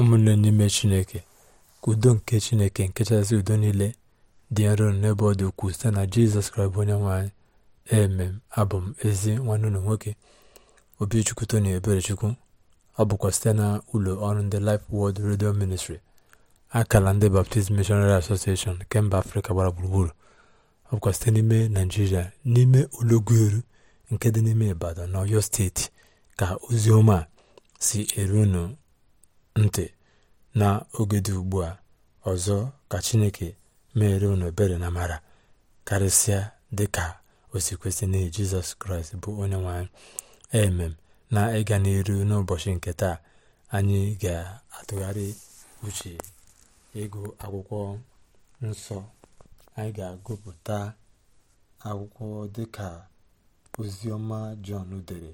ụmụnne n'ime chineke udo nke chineke nke kachasị udo niile dị nro n'ebe ọ dị ukwuu site na jizọs kraịst onye nwanyị emem abụ m ezi nwanne ụlọ nwoke obichukwu tony eberechukwu ọ bụkwa site na ụlọ ọrụ ndị Life Word redio ministri akala ndị Baptist Missionary Association nke mba afrịka gbara gburugburu ọ bụkwa site n'ime naijiria n'ime olọguru nke dị n'ime ibadan na oyo steeti ka ozi ọma si eru ntị na oge dị ugbu a ọzọ ka chineke meere unu ebere na mara karịsịa dị ka osikwesị n'ihi jizọs kraịst bụ onye nwanyị emem na ịga n'iru n'ụbọchị nke taa anyị ga-atụgharị uche ịgụ akwụkwọ nsọ anyị ga-agụpụta akwụkwọ dịka oziọma jọn dere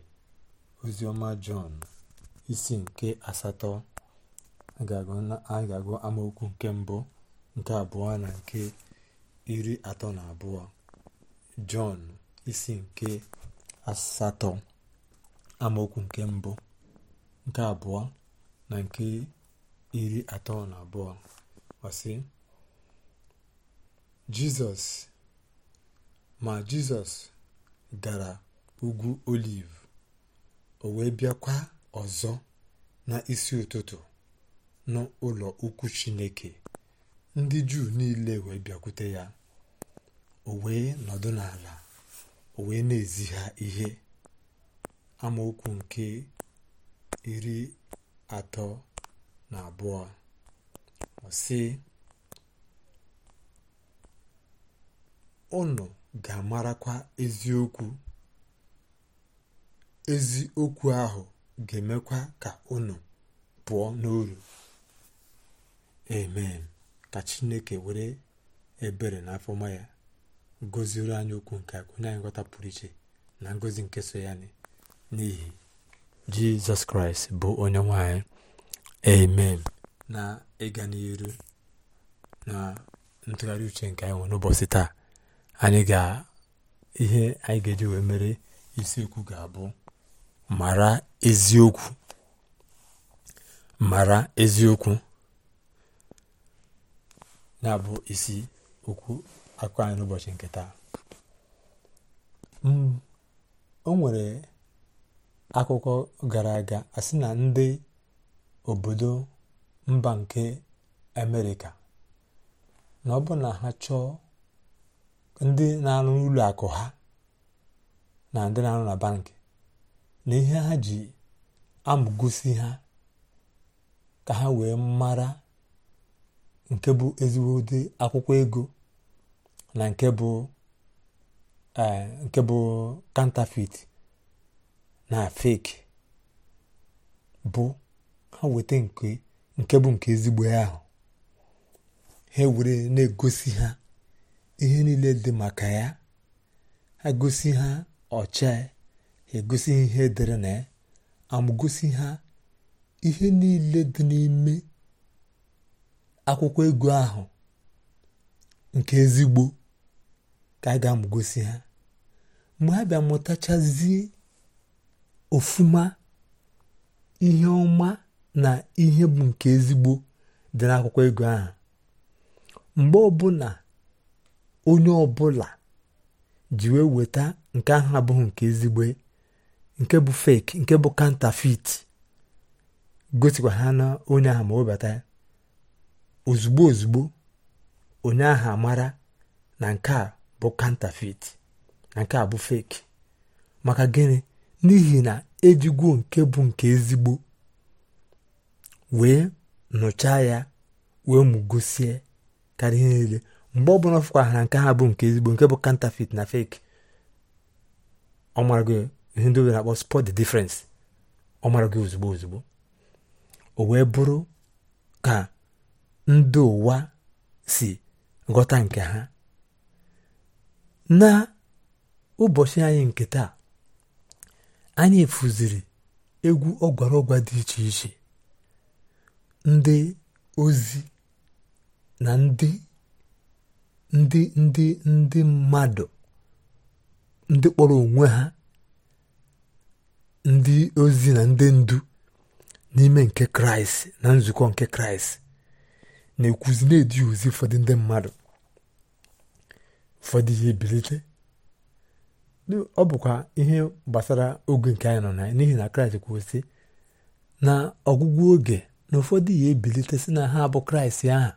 oziọma jọn isi nke asatọ anyị ga-agụ amaokwu nke mbụ nke abụọ na nke iri atọ na abụọ jọn isi nke asatọ amaokwu nke mbụ nke abụọ na nke iri atọ na abụọ ọsị jizọs ma jizọs gara ugwu oliv o wee bịakwa ọzọ n'isi ụtụtụ n'ụlọ ukwu chineke ndị juu niile wee bịakwute ya o wee nọdụ n'ala o wee na-ezi ha ihe amaokwu nke iri atọ na abụọ ọ ụnụ ga-amarakwa eziokwu eziokwu ahụ ga-emekwa ka ụnụ pụọ n'uru amen ka chineke were ebere na afọma ya goziru anyị okwu nke onye anyị nghọta pụrụ iche na ngozi nke so ya n'ihi jizọs kraịst bụ onye nwanyị amen na ịga n'iru na ntụgharị uche nke anyị nwere n'ụbọchị taa anyị ga ihe anyị ga-eji wee mere isiokwu ga-abụ mara eziokwu mara eziokwu na bụ isi okwu akụkọ anyị n'ụbọchị nke taa mm, o nwere akụkọ gara aga asị na ndị obodo mba nke amerịka na ọ bụ na ha chọọ ndị na-arụ n'ụlọ akụ ha na ndị na-arụ na bankị na ihe ha ji amụgosi ha ka ha wee mara nke bụ ezigbo ụdị akwụkwọ ego na nke bụ e, nke bụ kantafit na fake bụ ha weta nke bụ nke ezigbo ahụ ha were na-egosi ha ihe niile dị maka ya ha gosi ha ọcha egosi ihe dị na ya amagosi ha ihe niile dị n'ime akwụkwọ ego ahụ nke ezigbo ka a ga-amụgosi ha mgbe ha bịa mụtachazie ofuma ihe ọma na ihe bụ nke ezigbo dị n'akwụkwọ ego ahụ mgbe ọbụla onye ọbụla ji wee weta nke ahụ abụghị nke ezigbo nke bụ fake nke bụ counterfeit gosikwa ha na onye ahụ ma obata ya ozugbo ozugbo onye ahụ amara na nke a bụ counterfeit na nke a bụ fake maka gịnị n'ihi na ejigwo nke bụ nke ezigbo wee nụchaa ya wee mugosie karịa ihe niile mgbe ọ bụla ọ na nke a bụ nke ezigbo nke bụ counterfeit na fake ọ mara gị ihe ndị na-akpọ spot the difference ọ mara ozugbo ozugbo o wee bụrụ ka ndị ụwa si ghọta nke ha na ụbọchị anyị nke taa anyị efuziri egwu ọgwara ọgwa dị iche iche ndị ozi na ndị ndị ndị ndị mmadụ ndị kpọrọ onwe ha ndị ozi na ndị ndu n'ime nke kraịst na nzukọ nke kraịst na-ekwuzi na-edi ozi ụfọdụ ndị mmadụ ụfọdụ ihe ebilite ọ bụkwa ihe gbasara oge nke anyị nọ na n'ihi na kraịst kwụsị na ọgwụgwụ oge na ụfọdụ ihe ebilite si na ha abụ kraịst aha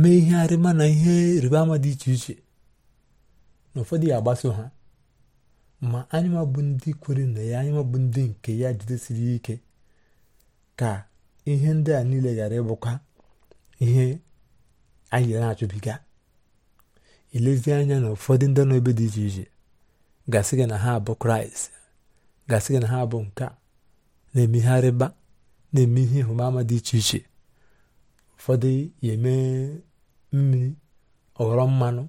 mee ihe arịma na ihe ịrịba ama dị iche iche na ụfọdụ ya agbaso ha ma anyị ndị kwere na ya anya ndị nke ya jidesiri ike ka ihe ndị a niile gara ịbụkwa ihe anyị na-achụbiga ilezi anya na ụfọdụ ndị nọ ebe dị iche iche gasị gị na ha bụ kraịst gasị gị na ha bụ nke na-eme ihe arịba na-eme ihe ịhụmama dị iche iche ụfọdụ ya eme mmiri ọghọrọ mmanụ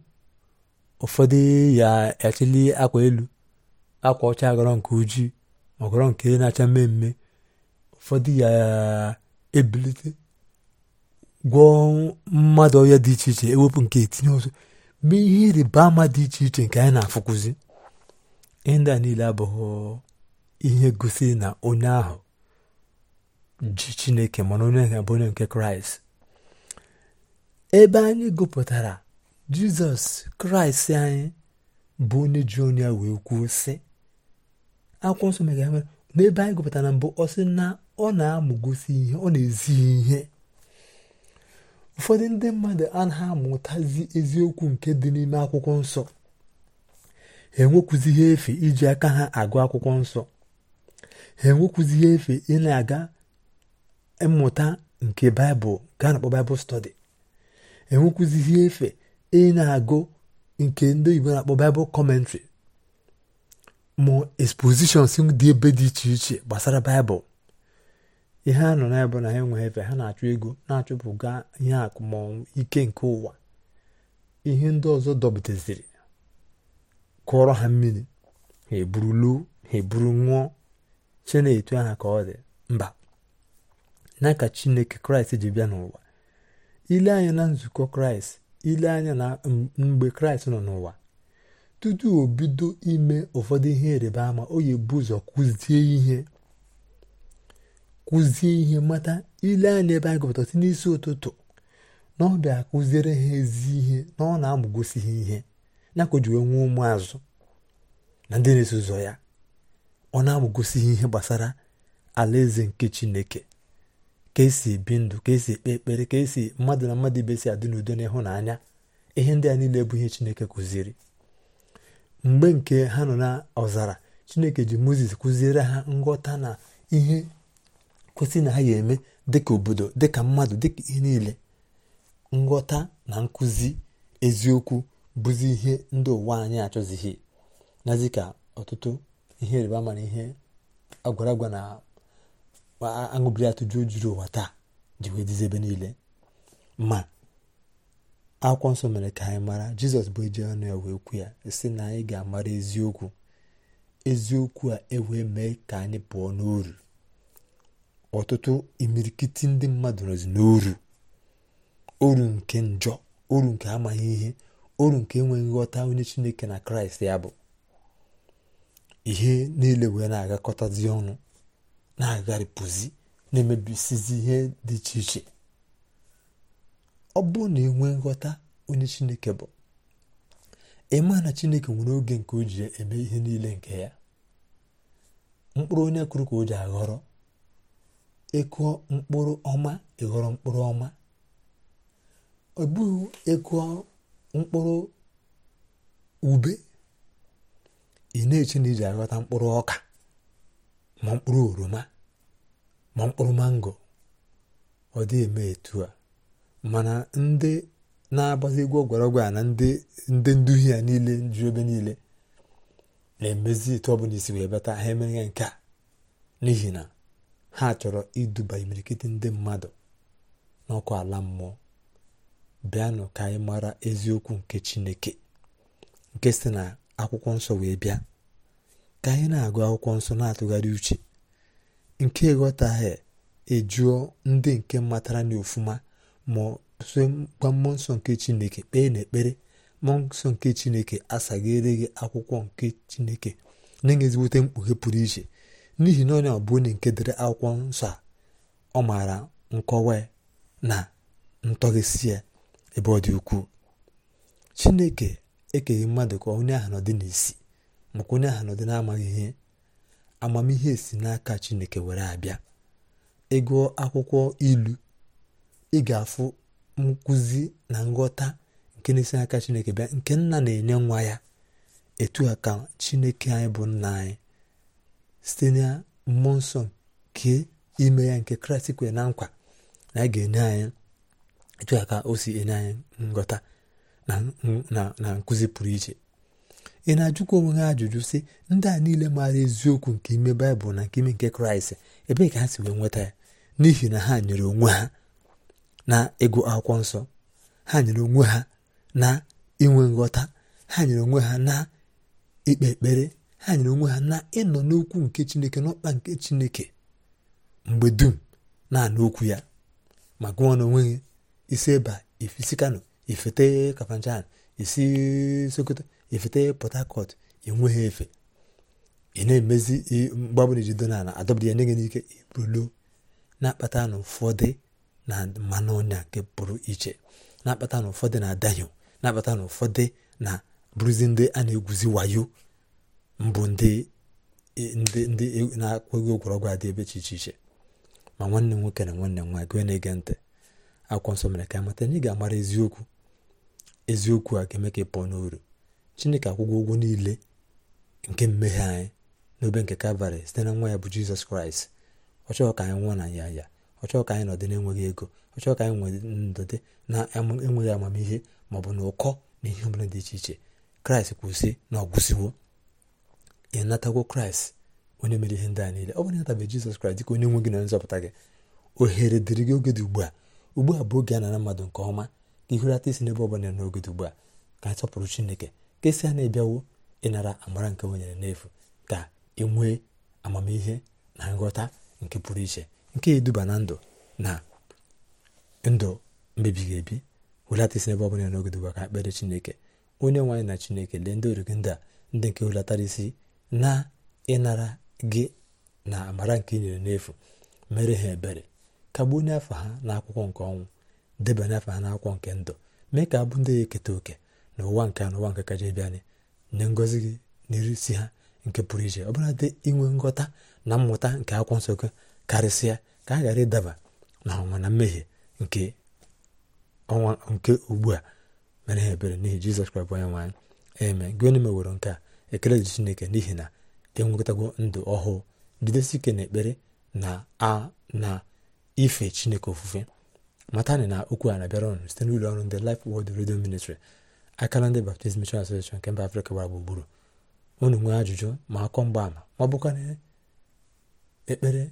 ụfọdụ ya echili akwa elu akwa ọcha aghọrọ nke ojii ma ọghọrọ nke na-acha mmemme ụfọdụ ya ebilite gwọọ mmadụ ọhịa dị iche iche ewepụ nke etinye ọzọ mee ihe ịrịba ama dị iche iche nke anyị na-afụkụzi ịndị a niile abụghị ihe gosiri na onye ahụ ji chineke mana onye ahụ bụ onye nke kraịst ebe anyị gụpụtara jizọs kraịst anyị bụ onye ji onye ya wee kwuo sị akwụkwọ nsọ megara n'ebe anyị gụpụtara mbụ ọ na ọ na-amụgosi ihe ọ na-ezi ihe ụfọdụ ndị mmadụ anaghị amụtazi eziokwu nke dị n'ime akwụkwọ nsọ ha enwekwuzi ihe efe iji aka ha agụ akwụkwọ nsọ ha enwekwuzi ihe efe ị na-aga mmụta nke baịbụl gaa na-akpọ baịbụl stọdi enwekwuzi ihe efe ị na-agụ nke ndị Igbo na-akpọ baịbụl kọmentrị ma expositions dị ebe dị iche iche gbasara baịbụl ihe ha nọ n'ebe na ha enweghị efe ha na-achụ ego na-achụpụga ihe akụ ike nke ụwa ihe ndị ọzọ dọbiteziri kụọrọ ha mmiri ha eburu luo ha eburu che na-etu aha ka ọ dị mba na ka chineke kraịst ji bịa n'ụwa ile anya na nzukọ kraịst ile anya na mgbe kraịst nọ n'ụwa tutu o bido ime ụfọdụ ihe ịrịba ama o yi ebu ụzọ kụzie ihe kụzie ihe mata ile anya ebe anyị gụpụtasị n'isi ụtụtụ na ọ bịa kụziere ha ezi ihe na ọ na-amụgosi ha ihe na-akụjuwe nwee ụmụazụ na ndị na-eso ụzọ ya ọ na-amụgosi ha ihe gbasara alaeze nke chineke ka esi ebi ndụ ka esi ekpe ekpere ka esi mmadụ na mmadụ ibe si adị n'udo na ịhụnanya ihe ndị a niile bụ ihe chineke kụziri mgbe nke ha nọ na ọzara chineke ji moses kụziere ha nghọta na ihe kwesị na ha ya eme dịka obodo dịka mmadụ dịka ihe niile nghọta na nkụzi eziokwu bụzi ihe ndị ụwa anyị achọzighị nazi ka ọtụtụ ihe ịrịba ama ihe agwara agwa na aṅụbiri atụjụ juru ụwa taa ji wee dizi ebe niile ma akwụkwọ nsọ mere ka anyị mara jizọs bụ eji ọnụ ya wee kwu ya si na anyị ga-amara eziokwu eziokwu a ewee mee ka anyị pụọ n'uru ọtụtụ imirikiti ndị mmadụ nọzi n'oru oru nke njọ oru nke amaghị ihe oru nke enweghị nghọta onye chineke na kraịst ya bụ ihe niile wee na-agakọtazi ọnụ na-agharịpụzi na-emebisizi ihe dị iche iche ọ bụrụ na enwe nghọta onye chineke bụ ịma na chineke nwere oge nke o ji eme ihe niile nke ya mkpụrụ onye kụrụ ka o ji aghọrọ ekuo mkpụrụ ọma ịghọrọ mkpụrụ ọma ọ bụghị ekuo mkpụrụ ube ị na-eche na iji aghọta mkpụrụ ọka ma mkpụrụ oroma ma mkpụrụ mango ọ dị eme etu a mana ndị na-agbazi egwu a na ndị ndị nduhi ya niile ju ebe niile na-emezi etu ọ isi wee bata ha emeghe nke a n'ihi na ha chọrọ iduba imirikiti ndị mmadụ n'ọkụ ala mmụọ bịanụ ka anyị mara eziokwu nke chineke nke si na akwụkwọ nsọ wee bịa ka anyị na-agụ akwụkwọ nsọ na-atụgharị uche nke ghọtaghị ejuo ndị nke matara na ma so gwa mmụọ nsọ nke chineke kpee n'ekpere mmụọ nsọ nke chineke asaghịre gị akwụkwọ nke chineke na-enye ezigbote mkpughe pụrụ iche n'ihi na onye ọbụ onye nke dere akwụkwọ nsọ a ọ maara nkọwa na ntọghịsi ya ebe ọ dị ukwuu chineke ekeghị mmadụ ka onye ahụ nọdị n'isi maka onye ahụ nọdị namaghị ihe amamihe si n'aka chineke were abịa ịgụọ akwụkwọ ilu ị ga-afụ nkụzi na nghọta nke na-esi n'aka chineke bịa nke nna na-enye nwa ya etu a ka chineke anyị bụ nna anyị site na mmụọ nsọ nke ime ya nke kraịst kwere na nkwa na a ga-enye anyị etu ka o si enye anyị nghọta na nkụzi pụrụ iche ị na-ajụkwa onwe ha ajụjụ sị ndị a niile maara eziokwu nke ime baịbụl na nke ime nke kraịst ebee ka ha si wee nweta ya n'ihi na ha nyere onwe ha na ịgụ akwụkwọ nsọ ha nyere onwe ha na inwe nghọta ha nyere onwe ha na ikpe ekpere ha nyere onwe ha na ịnọ n'okwu nke chineke n'ọkpa nke chineke mgbe dum na-anụ okwu ya ma gụọ na onweghị isi eba ifisi kano ifete kafanchan isi sokoto ifete port harcourt enweghị efe ị na-emezi mgbe ọbụla ijido n'ala adọbụrụ ya nye gị n'ike ibulo na-akpata na ụfọdụ na mmanụ ọnya nke pụrụ iche na-akpata na ụfọdụ na adahio na-akpata na ụfọdụ na bụrụzi ndị a na-egwuzi wayo mbụ ndị ndị e, na-akwụghị ụgwọrọgwụ adị ebe 'che iche iche ma nwanne nwoke na nwanne m nwaanyị gị na-ege ntị akwụkwọ nsọ mere ka amata anyị ga-amara eziokwu eziokwu a ga-eme ka ị pụọ n'uru chineke akwụgwọ ụgwọ niile nke mmehie anyị n'obe nke kalvarị site na nwa ya bụ jizọs kraịst ọ chọghị ka anyị nwụọ na ya ya ọ chọghị ka anyị nọdị na-enweghị ego ọ chọghị ka anyị dị na-enweghị amamihe ma ọ bụ na ụkọ na ihe ọbụla dị iche iche kraịst kwụsị na ọ gwụsịwo ị kraịst onye mere ihe ndị a niile ọ bụrụ ịnatabeghị jizọs kraịst dịka onye nwe gị na nzọpụta gị ohere dịrị gị oge dị ugbu a ugbu a bụ oge a nara mmadụ nke ọma ka ihurata isi n'ebe ọbụla n'oge dị ugbu a ka anyị sọpụrụ chineke ka esi a na-ebiawo ịnara amara nke wenyere n'efu ka ị nwee amamihe na nghọta nke pụrụ iche nke eduba na ndụ na ndụ mbibighị ebi hulata isi n'ebe ọbụla n'oge dị ugbu a ka ekpere chineke onye nwaanyị na chineke lee ndị oriri ndị a ndị nke hulatara isi na ịnara gị na amara nke nyere n'efu mere ha ebere kagbuo onye afọ ha akwụkwọ nke ọnwụ debanye afọ ha n'akwụkwọ nke ndụ mee ka abụ ndị ya eketa oke na ụwa nke a na ụwa nke kaja bịanị nye ngọzi gị n'iri si ha nke pụrụ iche ọ bụla dị inwe nghọta na mmụta nke akwụkwọ nsọ gị karịsịa ka a ghara ịdaba na ọnwa na mmehie nke ọnwa nke ugbu a mere ha ebere n'ihi jizọs kraịst bụ onye nwaanyị eme gị onye meworo nke a ekele dị chineke n'ihi na enwetago ndụ ọhụụ jidesi na ekpere na a na ife chineke ofufe matani na okwu a na-abịara ọnụ site n'ụlọ ọrụ ndị Life Word redio Ministry akara ndị Baptist Mission nke mba Afrịka gbara gburugburu unu nwee ajụjụ ma akọ mgbaama ma ekpere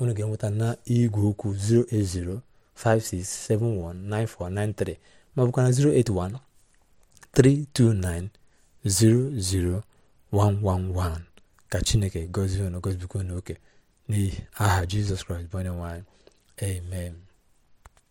unu ga-enweta na igwe okwu 08056719493 ma ọ 081 329 00111 ka chineke gozie unu gọzibikwa unu oke n'ihi aha jizọs kraịst bụ onye nwe amen